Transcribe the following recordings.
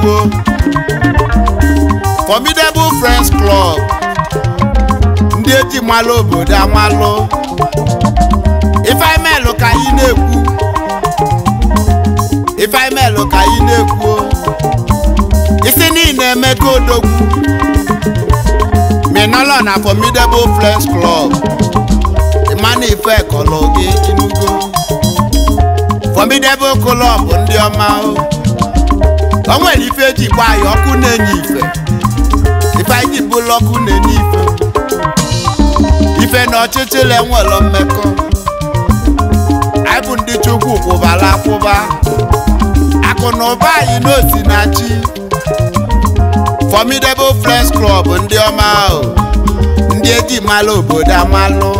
Igbo Formidable Friends Club ndị eji malụ obodo amalụ ifemelụ ka anyị na-ekwu ifemelụ ka anyị na-ekwu isi niile emeka odogwu minọlọ na Formidable Friends Club ịmana ife kọlụ gị inugo Formidable Club ndị ọma o oh. o nwere ife eji gba na-enye ife ife anyị ji bụlụ na-enye ife ife na ọchịchịrị enwelọ mmekọ anyị bụ ndị chukwu kwụbara akwụba akụ na ụba anyị n'osi na chi Formidable Friends Club ndị ọma ahụ ndị eji malụ obodo amalụ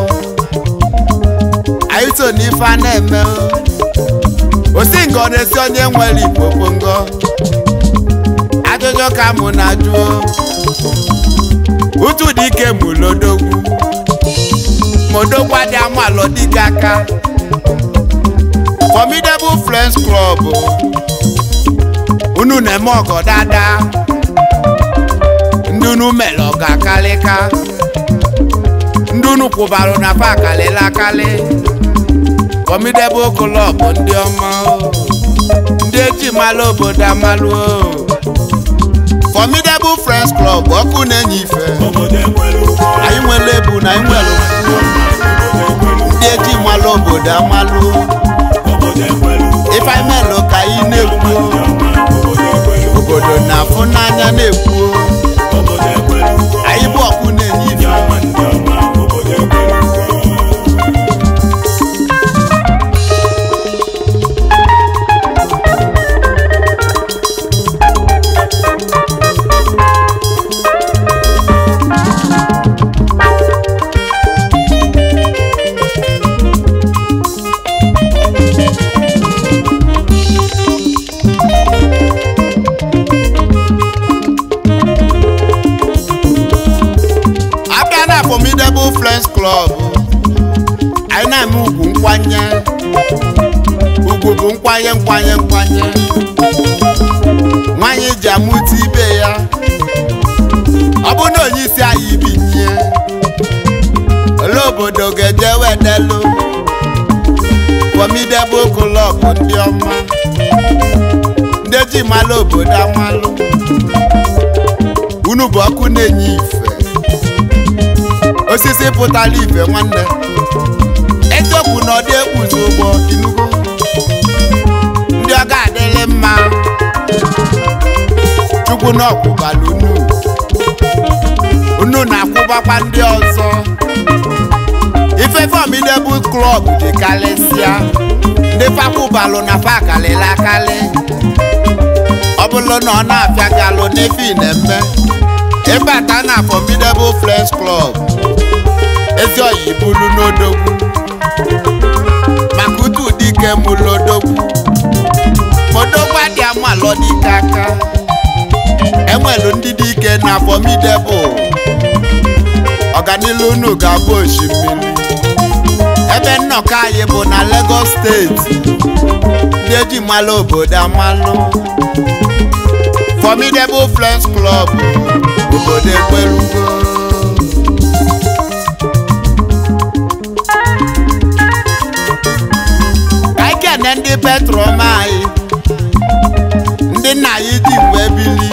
anyị so n'ife na-eme osingo na-esi onye nwere igbo pongo Ojo ka mụ na-ajụ utu dị Mo mụlodogwu modogwu adị amalụ dịka aka formidable friends club unu na-eme ọgọ dada Ndunu unu mere Ndunu akalịka ndị unu kwụbara na pa akalịla akalị formidable club ndị ọma ndị eji mara obodo bụ Friends Club ọkụ na-enye ife anyị nwere ebu na anyị nwere ndị eji malụ obodo amalụ ife anyị melụ ka anyị na-ekwu obodo na-afụ n'anya na-ekwu obodo ga-eje wedelu omidebe okolobụ ndị ọma ndị ji malụ obodo amalụ unu bụ ọkụ na-enye ife osisi pụtara ife nwanne eziokwu na ọdị ekpuzi ụgbọ inugo ndị ọ ga mma chukwu na unu unu na-akwụbakwa ndị ọzọ ife formidable club dị karịsịa ndị fakwubalụ na fa kalịla ọ bụrụ na ọ na-afịa galụ n'ife inemme ịbata na formidable friends klọb. ezi oyi bulu n'odogwu maka utu dike mụlụ odogwu odogwu adị amalọ dike aka na formidable ọganilu unu ga-abụ osimiri ebe nnọkọ anyị bụ na Lagos steeti ndị eji mmalụ obodo amalụ Formidable Friends Club obodo ekwerugo anyị kene ndị petrom anyị ndị nna anyị ji mgbe bili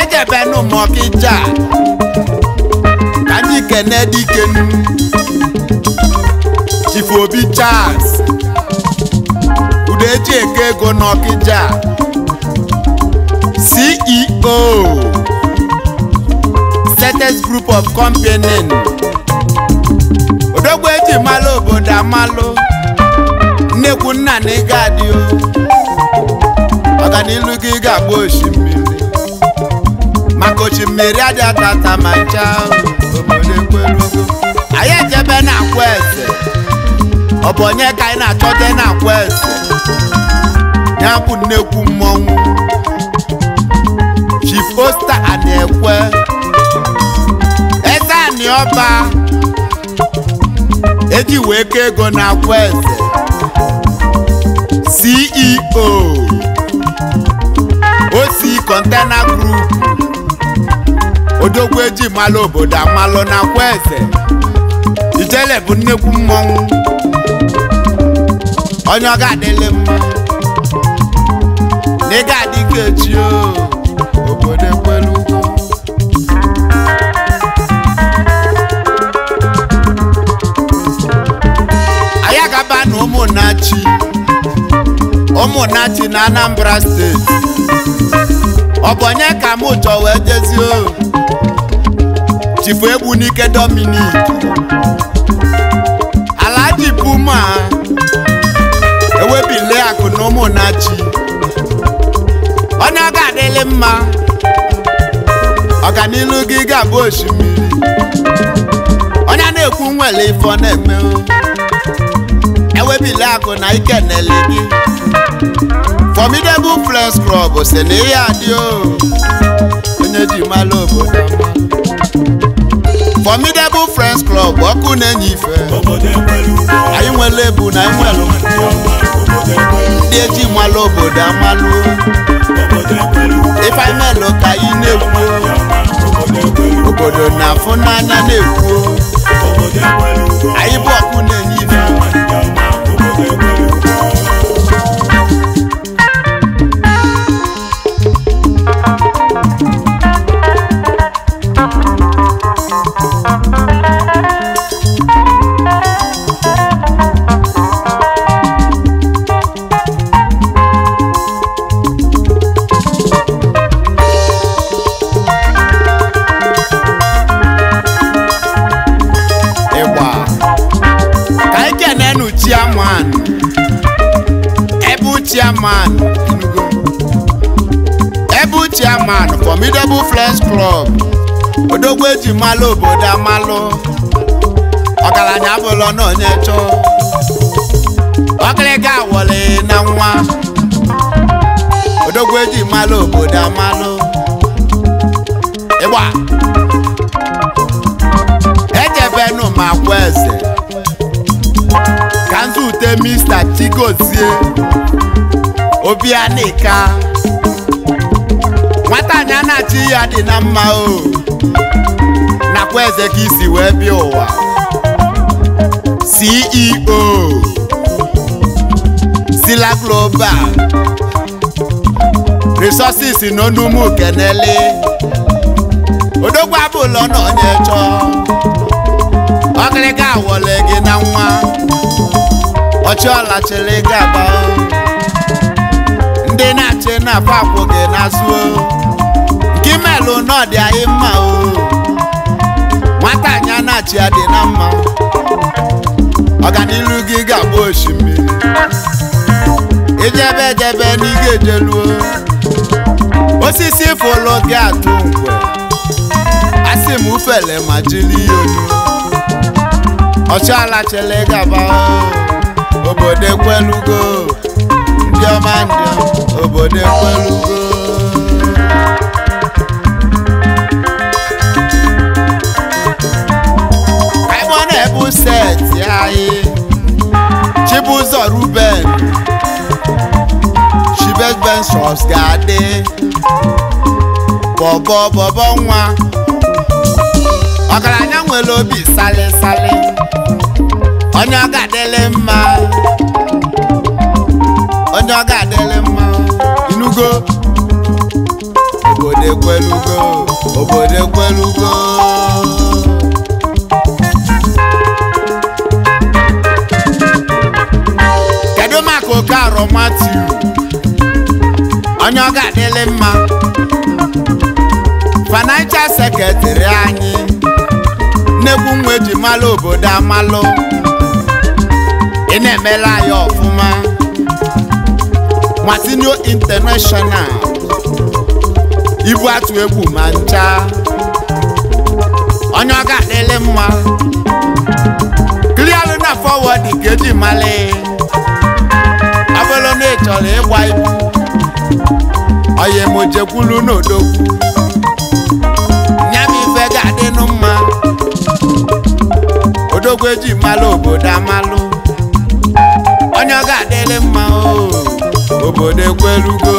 ejebenu mọkịja ka anyị kene dikenu Chief Obi Charles Udeji Eke Ego n'Ọkịja CEO Status Group of Company Odogwu eji malụ obodo amalụ nnekwu nna na ego adịo ọganilu gị ga-agba osimiri maka osimiri adị atata ma ncha obodo ekwelugo anyị ejebe na akwa eze ọ bụ onye ka anyị na-achọte na kwest ya bụ nnekwu mmọnwụ chief osta ana-ekwe eze anị ọba eji wee kee ego na kwest ceo osi container group odogwu eji malụ obodo amalụ na kweze ijele bụ nnekwu mmọnwụ onye ọ ga-adịlị m n'ịga adịke echi obodo ugwu anyị agaba na ụmụnnachi ụmụnnachi na Anambra steeti ọ bụ onye ka m chọ wee jezie chifu egwu n'ike ala Alhaji ewebile akụ na ụmụnachi onye ọ ga-adịlị mma ọganilu gị ga-abụ osimiri onye na-ekwu nwere ife ọ na-eme ewebile akụ na ike na-ele gị formidable flex club si na ihe adị onye ji mara obodo formidable friends club ọkụ na-enye ife anyị nwere ebu na anyị nwere ndị eji malụ obodo amalụ ifeanelu ka anyị na-ekwu obodo na-afụ n'anya na-ekwu anyị bụ ọkụ na-enye ife Formidable flesh Club odogwu eji malụ obodo amalụ ọgaranya abụlọ na onye chọọ ọkịrịga awọlị na nwa odogwu eji malụ obodo amalụ ịgba ejebenu ma kwa eze ka nzute mista chigozie obianika nwata anyị achị ya dị na mma o nakwa eze ka isi wee bịa ụwa CEO Sila Global Resources n'Onumu Kenele odogwu abụlọ na onye chọọ ọkịrịka awọle gị na nwa ọchịọla chịrị gị agba ndị na-achị na-afọ akwụ gị n'azụ omelu n'ọdị anyị mma o nwata anyị na ya dị na mma ọganilu gị ga bụ osimiri ijebe ejebe n'iga ejeluo osisi fụlụ gi atụ ngwe Asi m ufele ma jiri ya olu ọchịala chele gaba obodo ekwelugo ndị ọma ndị obodo go set anyị Chibuzọ Ruben Chibet Ventures ga-adị bọbọ bọbọ nwa ọgaranya nwere sale salịsalị onye ọga ga-adịlị mma onye ọga ga mma inugo obodo ekwelugo obodo ekwelugo nwoke arọ matiu onye ọ ga-adịlị mma financial secretary anyị nnekwu nwa eji malụ obodo amalụ ị na-emela ya ọfụma Martino International ibu atụ egwu ma ncha onye ọ ga-adịlị mma klịalụ na forward ka eji malị chọrọ ịgwa ibu oyi jekwulu n'odogwu nya m ife ga-adịnụ eji malụ obodo amalụ onye ọ ga-adịlị mma o obodo ekwelugo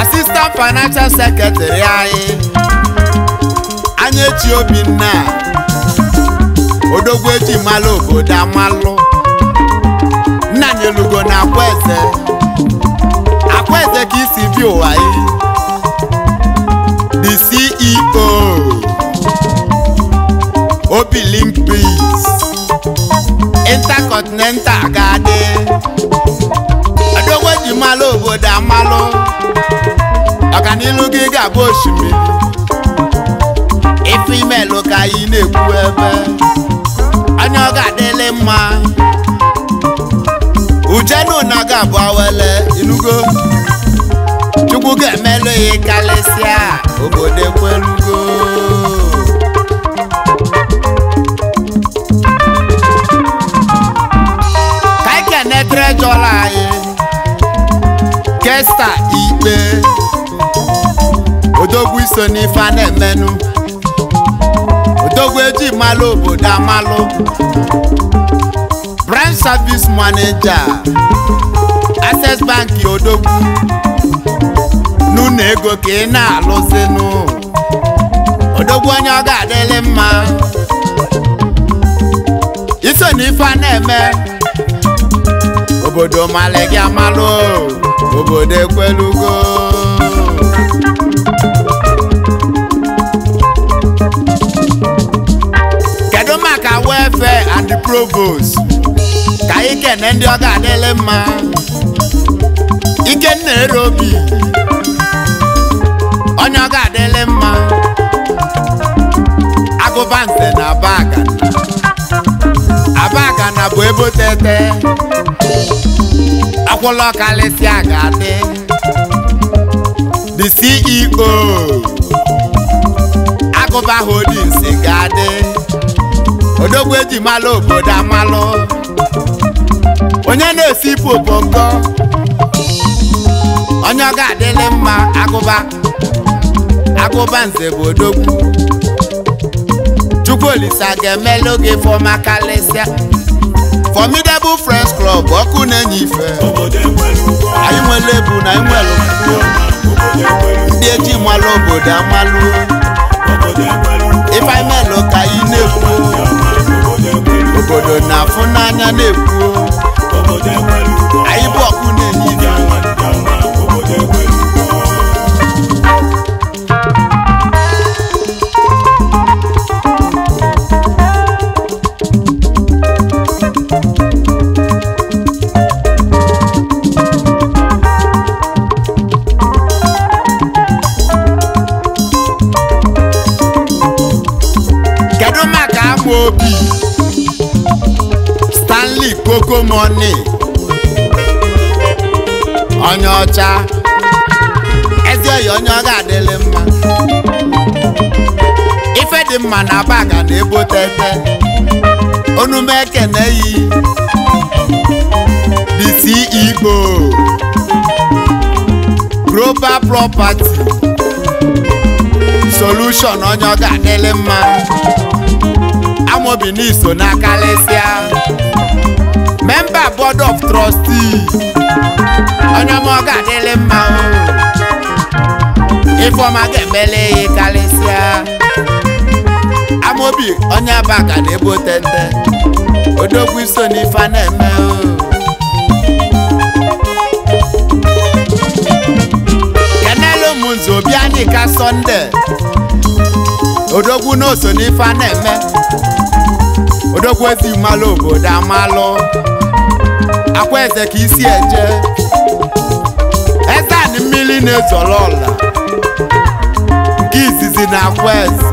asistant financial secretary anyị anya echi obinna odogwu eji obodo amalụ nna anyị na akwaeze akwaeze ka isi bi ụwa yi the CEO Obilink Peace Intercontinental ga-adị odogwu eji malụ obodo amalụ ọganilu gị ga-abụ osimiri ife imelụ ka anyị na-ekwu ebe onye ọ ga-adịlị mma Uchenna Unaga abụ awele ilugo Chukwu ga-emelụ ya karịsịa obodo ekwelugo ka anyị anyị Kesta Ikpe odogwu iso n'ife a na-emenụ Odogbu eji malụ obodo amalụ branch service manager access bank odogwu n'ụlọ ego ka ị na-alụzinụ odogwu onye ọ ga-adịlị mma iso na ife na-eme obodo malị gị amalụ obodo ekwelugo provost ka anyị kene ndị ọ ga adịlị mma Ikenna erobi, obi onye ọ ga adịlị mma agụba nse na abagana abagana bụ ebe otete akwụla ọkalịsịa ga-adị the CEO agụba holdings ga-adị odogwu eji malụ obodo amalụ onye na-esi ipu oponko onye ọ adịlị mma agụba agụba nze bụ odogwu chukwu olise ga-emelụ gị fọma kalịsịa formidable friends club ọkụ na-enye ife anyị nwere ebu na anyị nwere ndị eji malụ obodo amalụ ifeanyị obodo na-afụ n'anya na-ekwu anyị bụ ọkụ na-enye Anị onye ọcha ezi oyi onye ọga adịlị mma ife dị mma na baga na ebotete onume na eyi, bisi Igbo e global property solution onye ọga adịlị mma amobi n'iso na kalịsịa memba board of trustees onye ọma mma ifeọma ga-emele ya karịsịa amobi onye aba na-ebe otete odogwu iso n'ife na-eme kenelu obi anyị ka sọnde odogwu na oso n'ife na-eme odokwuezi malụ obodo amalụ akwa eze ka isi eje eze anị mmiri na-ezọrọ ọla nke izizi na akwa eze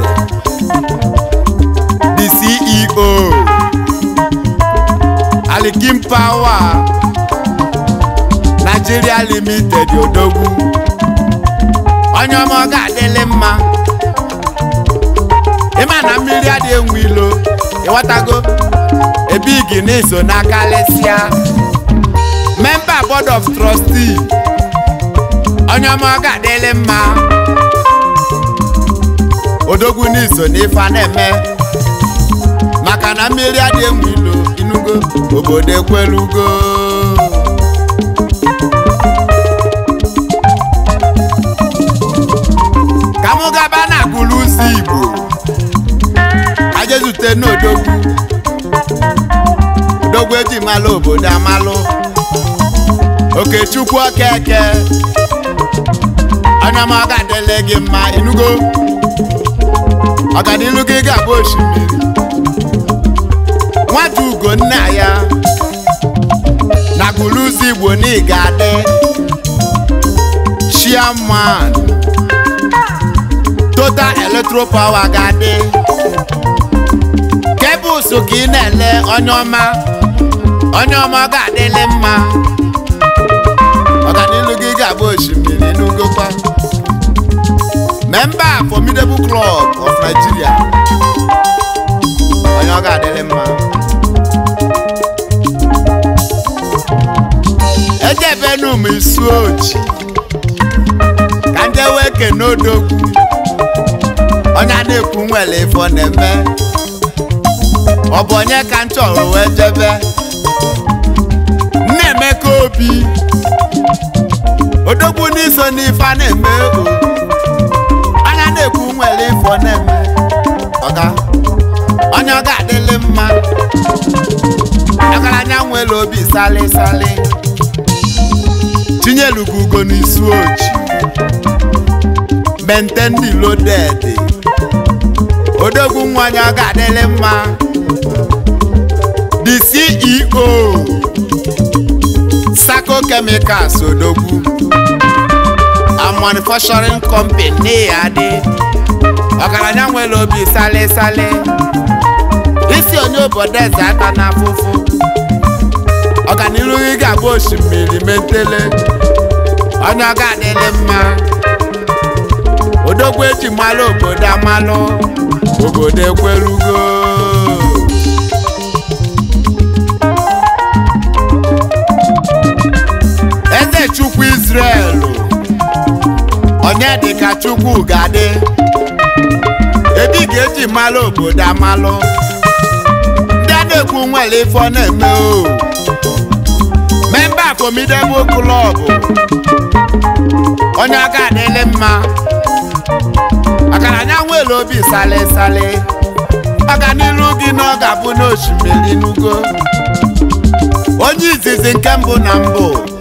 di CEO Alikim Power Nigeria Limited Odogwu onye ọma ọ ga-adịlị mma ịma na mmiri adị enwe ilo ịghọtago ebigi na iso n'aka lesịa memba board of trustee onye ọma ọ ga mma odogwu n'iso n'ife a na-eme maka na mmiri adịghị egwu obodo ekwelugo eji malụ obodo amalụ Okechukwu Okeke anya m ọ ga gị mma inugo ọganilu gị ga-abụ osimiri nwata ugo nna ya na gụrụzi igbo na ga-adị chairman total electro power ga-adị so ka ị na-ele onye ọma onye ọma ga-adịlị mma ọganilu gị ga-abụ osimiri n'ugokwa memba formidable club of Nigeria onye ọ ga-adịlị mma ejebenu m isu oji ka ndị wee kene onye adịkwu na nwere ifo na-eme ọ bụ onye ka m wee jebe ife obi odogwu n'iso n'ife a na-eme anya na-ekwu nwere ifo na-eme ọga onye ọ ga-adịlị mma ọgaranya nwere obi sali sali tinyelugu ugo n'isu oji mente ndị lodedị odogwu nwa onye ọ ga-adịlị mma the CEO Igbo Chemicals Odogwu a manufacturing company na-adị ọgaranya nwere obi sale sale isi onye obodo eze aka na afụfụ ọganiru gị ga-abụ osimiri metele onye ọ ga mma Odogwu eji malụ obodo amalụ obodo ekwerugo chukwu Israel onye dịka chukwu ga-adị ebi ga-eji malụ obodo amalụ ndị a na-ekwu nwere ifo na-eme o memba formidable klọbụ onye aka adịlị mma Akara anya nwere obi sale sale maka n'ilu gị na ọ ga-abụ n'osimiri n'ugo onye izizi nke mbụ na mbụ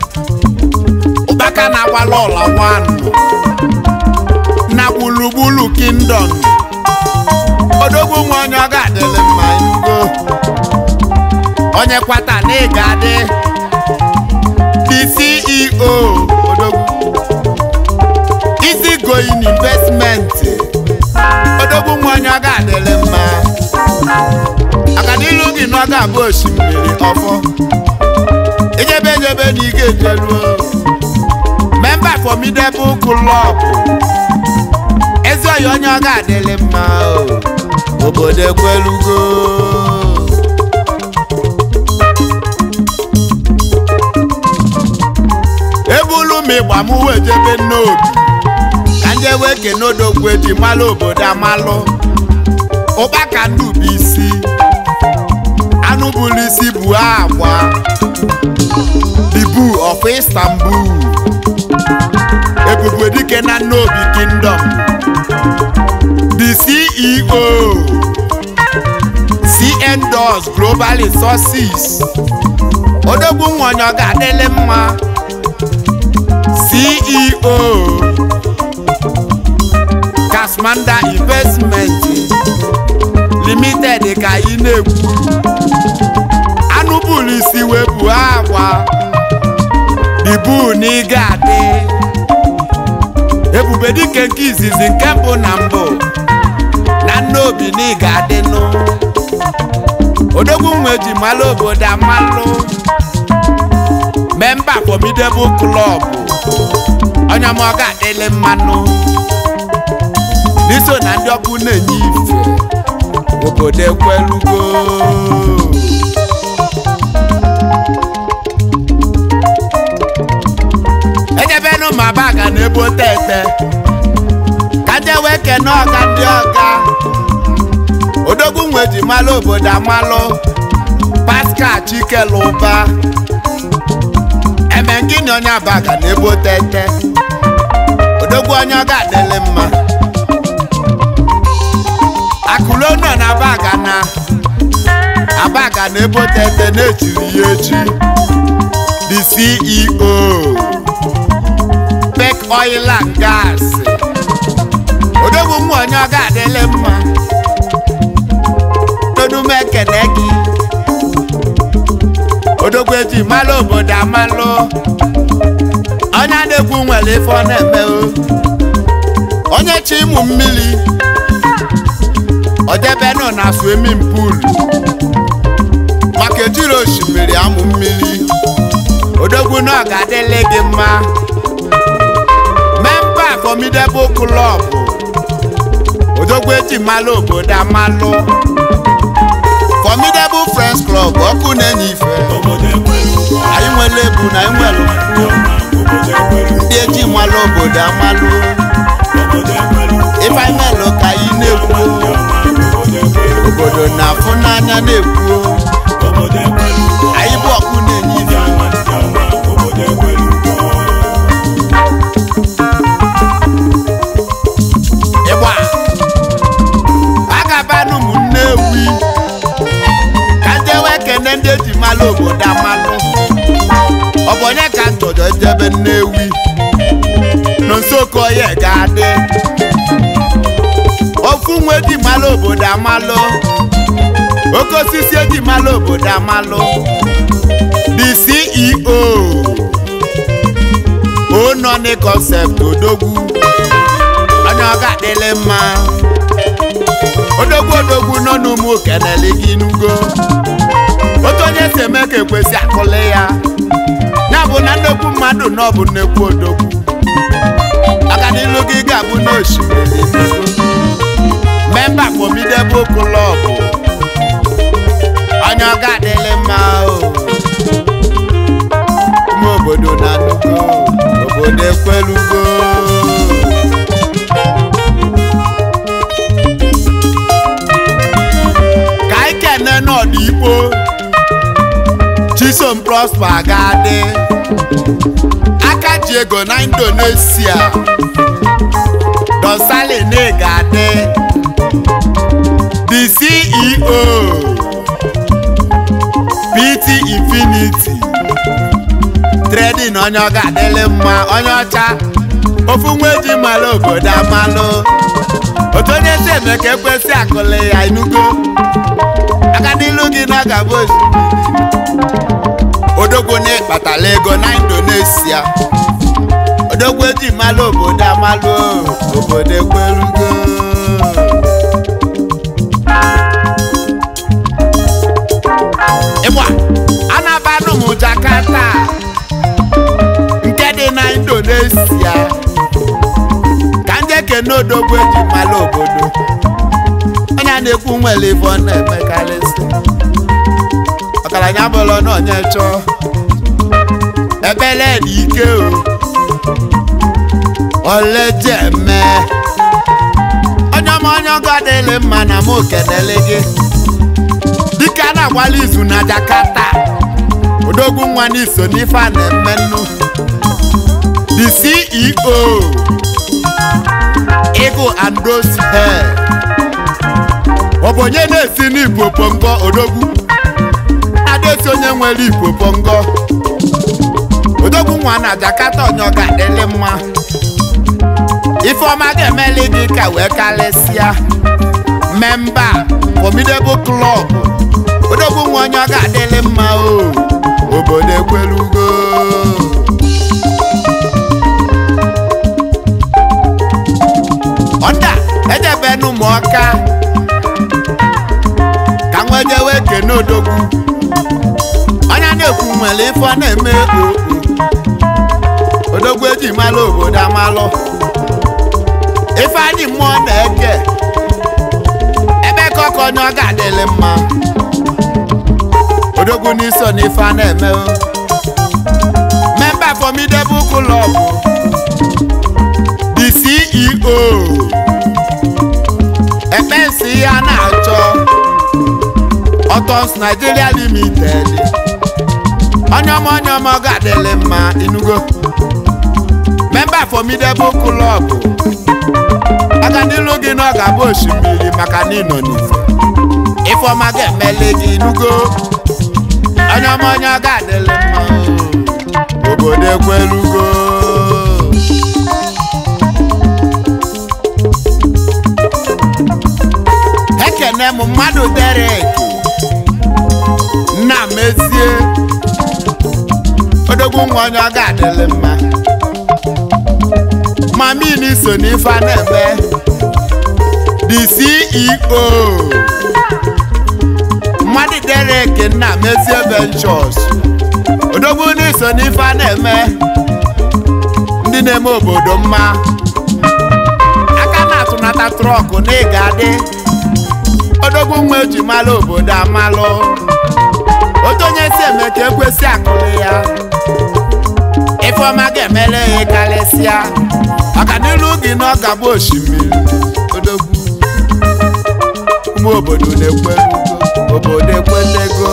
aka na-agbala ọla wanụ na gburugburu kingdom odogwu nwa onye ọ ga-adịlị mma go onye kwata na ị ga-adị the odogwu easy going investment odogwu nwa onye ọ ga-adịlị mma akadilu gị na ọ ga-abụ osimiri ọfọ Ijebe ejebe na ị ga-ejeruo formidable club ezi oyi onye ọ ga-adịlị mma obodo ekwelugo ebulu m ịgba m wee jebe n'obi ka ndị wee kene odogwu eji malụ obodo amalụ ụkpaka ndị bụ isi anụ bụrụ isi bụ agwa dibu of Istanbul ebube dike na the kingdom the ceo cn doors global resources odogwu nwanyị ọ ga-adịle mma ceo kasmanda investment limited ka ị na-ekwu ibu na adị ebube dịka nke izizi nke mbụ na mbụ na nna obi na ị ga-adịnụ odogwu nwe ji mara obodo amalụ memba formidable club onye ma ọ ga mmanụ n'iso na ndị ọkụ na-enye ife obodo ekwelugo Ụmụabaka na-ebo tete kaje wee na ọga ndị ọga odogwu nwe ji malụ obodo amalụ Pascal Chikeluba emengini onye Abaka na-ebo tete odogwu onye ọga adịlị mma akụlo nọ na Abaka na Abaka na-ebo tete na-echiri ya echi oil and gas odogwu onye ọ ga-adịle mma tonume ekene gị odogwu eji malụ obodo amalụ onye na-ekwu nwere ife na-eme onye chi ịmụ mmiri odebenu na swimming pool maka ejiri osimiri amụ mmiri odogwu na ga-adịle gị mma formidable club odogwu eji malụ obodo amalụ formidable friends club ọkụ na-enye ife anyị nwere na anyị nwere ndị eji malụ obodo amalụ ife anyị melụ ka anyị na-ekwu obodo na-afụ n'anya na-ekwu anyị bụ ọkụ na obodo amalụ oke osisi eji malụ obodo amalụ the CEO onọ concept odogwu onye ọ ga-adịlị mma odogwu odogwu nọ n'ụmụ kenele gị n'ugo otu onye si eme ka ekwesị akụli ya ya bụ na nnekwu mmadụ na ọ bụ nnekwu odogwu aka n'ilu gị ga-abụ n'osimiri memba Formidable Club onye ọga adịlị mma ụmụ obodo na-anụgo obodo ekwelugo ka anyị kene n'ọdịigbo Chisom Prosper ga-adị aka ego na Indonesia Don Sale na adị PTO oh. PT Infinity trading onye ọ ga-adịlị mma onye ọcha ofu nwa eji mara obodo amalụ oto onye si eme ka ekwesị akụli ya inugo aka n'ilu gị na gabụ odogwu na ego na Indonesia odogwu eji malo obodo amalụ obodo ekwerugo Jakarta nke dị na Indonesia ka ndị ekene odogwu eji mara obodo onye na-ekwu nwere ife ọ na-emekarịsị ọgaranya bụrụ na onye chọọ ebele na ike o olejeme onye ọma onye ọgọ adịghị mma na m kenele gị dịka na-agbala izu na Jakarta odogwu nwa n'iso n'ife a na-eme nnu the CEO Eagle and Hair ọ bụ onye na-esi n'Igbo Pongo odogwu adesi onye nwere Igbo Pongo odogwu nwa na Jakarta onye ga-adịlị mma Ifeọma ga-emeli gị ka wee karịsịa memba formidable club odogwu nwa onye ọ ga-adịlị mma o oh. obodo ekwelugo ọda ejebenu m ka nwejewe kene odogwu ọnya na-ekwu nwere ife ọ na eji malụ obodo amalụ ife anyị na-eke ebe ka ọkọ onye ọ ga odogwu n'isi ọ na ife a na-eme memba formidable club the CEO ekpensi ya na-achọ Nigeria Limited onye ọma ga-adịlị ma inugo memba formidable club aga n'ilu gị na ọ ga-abụ osimiri maka na ịnọ ifo ma ga-emeli gị inugo onye ọma onye ọga adịlị mma obodo ekwelugo ekene m mmadụ Derek nna mezie odogwu nwa onye ọga adịlị mma mamini so n'ife a na CEO Eric nna mezie ventures odogwu n'iso n'ife a na-eme ndị na-eme obodo mma aka na-atụnata trọkụ na ịga adị odogwu nwa eji malụ obodo amalụ otu onye si eme ka ekwesị ya ifeoma ga-emele ya karịsịa maka n'ilu gị na ọ ga-abụ osimiri odogwu ụmụ obodo na-ekwe obodo ekwenego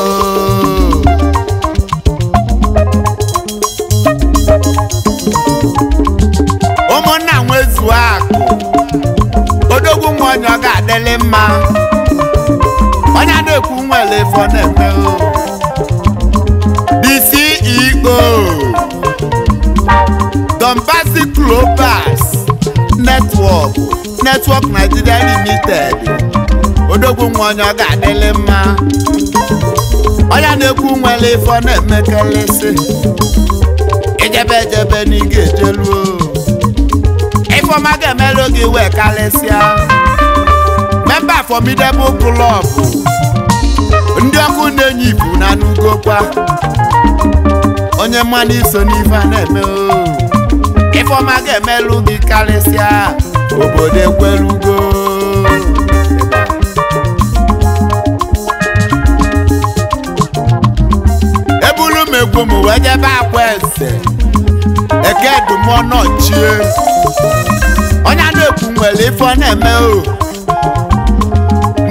ụmụnna nwezuo akụ odogwu nwa onye ọ ga-adịlị mma onye a na-ekwu nwere efe ọ na-eme the Dombasi Global Network Network Nigeria Limited odogwu nwa onye ọ ga-adịlị mma onye na-ekwu nwere ife ọ na-emekelesi ejebe ejebe n'iga ejeluo ifeọma ga-emelu gị wee karịsịa memba formidable club ndị ọkụ na-enye ibu na anugokwa onye mmanụ iso n'ife a na-eme ifeọma ga-emelu gị karịsịa obodo ekwelugo egwu m wee jebe akwa eze ekedumọnọchie onye na-ekwu nwere ife ọ na-eme o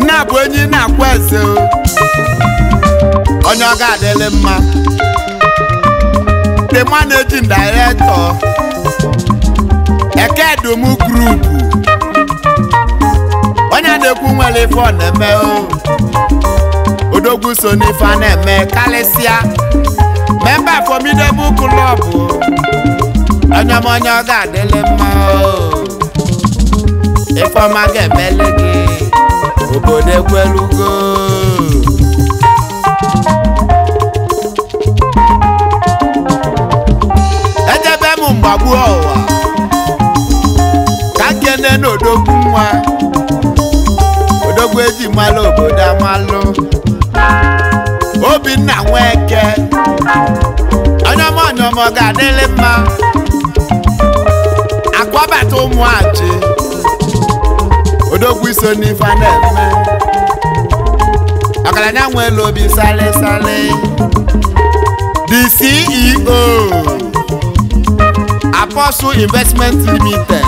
nna bụ enyi na-akwa ese o onye ọ ga ma. mma dịma na-eji ndaretọ ekedum grupu onye na-ekwu nwere ife ọ na-eme o odogwu so n'ife a na-eme karịsịa member formidable club onye ọma onye ọ ga-adịlị mma ifeọma ga-emeli gị obodo ekwelugo ejebe m mgbagbu ọwa ka nkene n'odogwu nwa odogwu eji malụ malo, amalụ obinna nweke onye ọma onye adele mma. ga-adịlị mma akwabata ụmụachi odogwu iso n'ife a na-eme ọgaranya nwe elu sali sali the CEO Apostle Investment Limited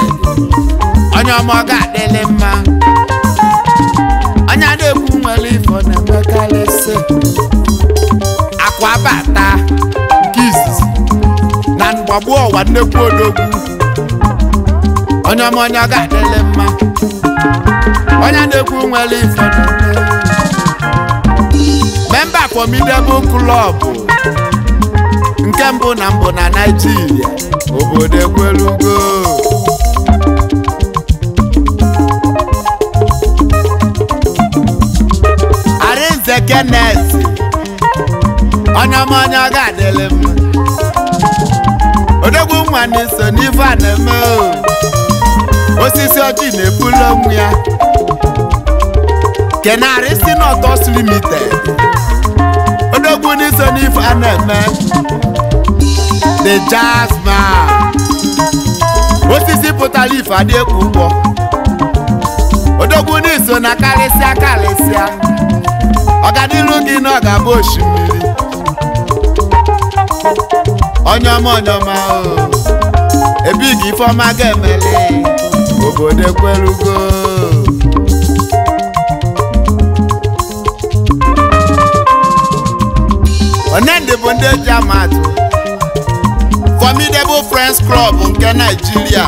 onye ọma ọ ga-adịlị mma onye a na nwere ifo na-emekarịsị ọgbagbuo ọwa nnekwu odogwu onye ọma onye ọ ga-adịle mma onye na-ekwu nwere ife memba formidable club nke mbụ na mbụ na Naịjirịa obodo ekwelugo Arinze Kenneth onye ọma onye ọ ga-adịle mma nwa na-eso n'ife a na-eme osisi ọjị na-ebulu onwe ya kenarị si n'ọtọs limited odogwu n'iso n'ife a na-eme the jazzman osisi pụtara ife adị ekwu ụgwọ odogwu n'iso na karịsịa karịsịa ọganiru gị na ọ ga-abụ osimiri onyoma onyoma o ebi ebigi ifeọma ga-emeli obodo ekwelugo onendị bụ ndị eji amatụ formidable friends club nke Naịjirịa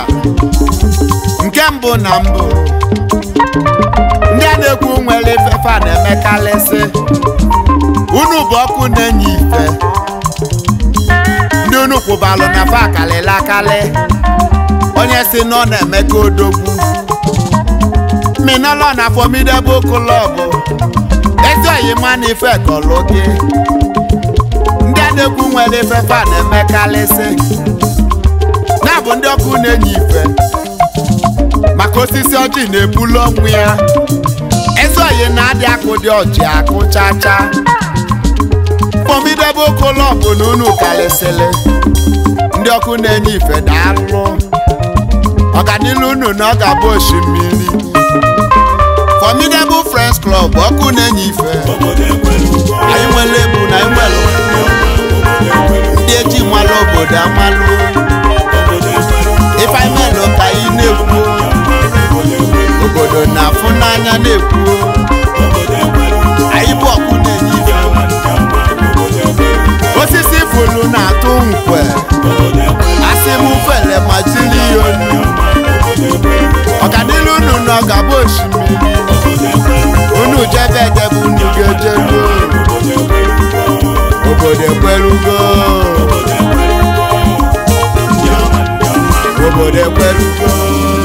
nke mbụ na mbụ ndị a na-ekwu nwere ifefe na-emekarịsị unu bụ ọkụ na-enye ife unu kwụbalụ na akalịla akalị onye si na ọ na-emeka odogwu minọlọ na formidable club ma na ife kọlụgị ndị adegwu nwere ife fa na-emekalịsị na-abụ ndị ọkụ na-enye ife maka osisi ọjị na-ebulu ọnwụ ya oyi na adị akụ dị ọjị akụ chacha kpọmidebe okolobụ na unu karịsịrị ndị ọkụ na-enye ife daalụ ọganilu unu na ọ ga-abụ osimiri Friends Club ọkụ na-enye ife anyị nwere ebu na nwere ndị eji malụ obodo amalụ ife anyị melụ ka anyị na-ekwu obodo na-afụ n'anya na-ekwu osisi fulu na-atụ nkwe asị m fele ma jiri ya onu ọkadilu unu na ọgaba osimiri unu jebe edebe unu ga obodo ekwerugo obodo ekwerugo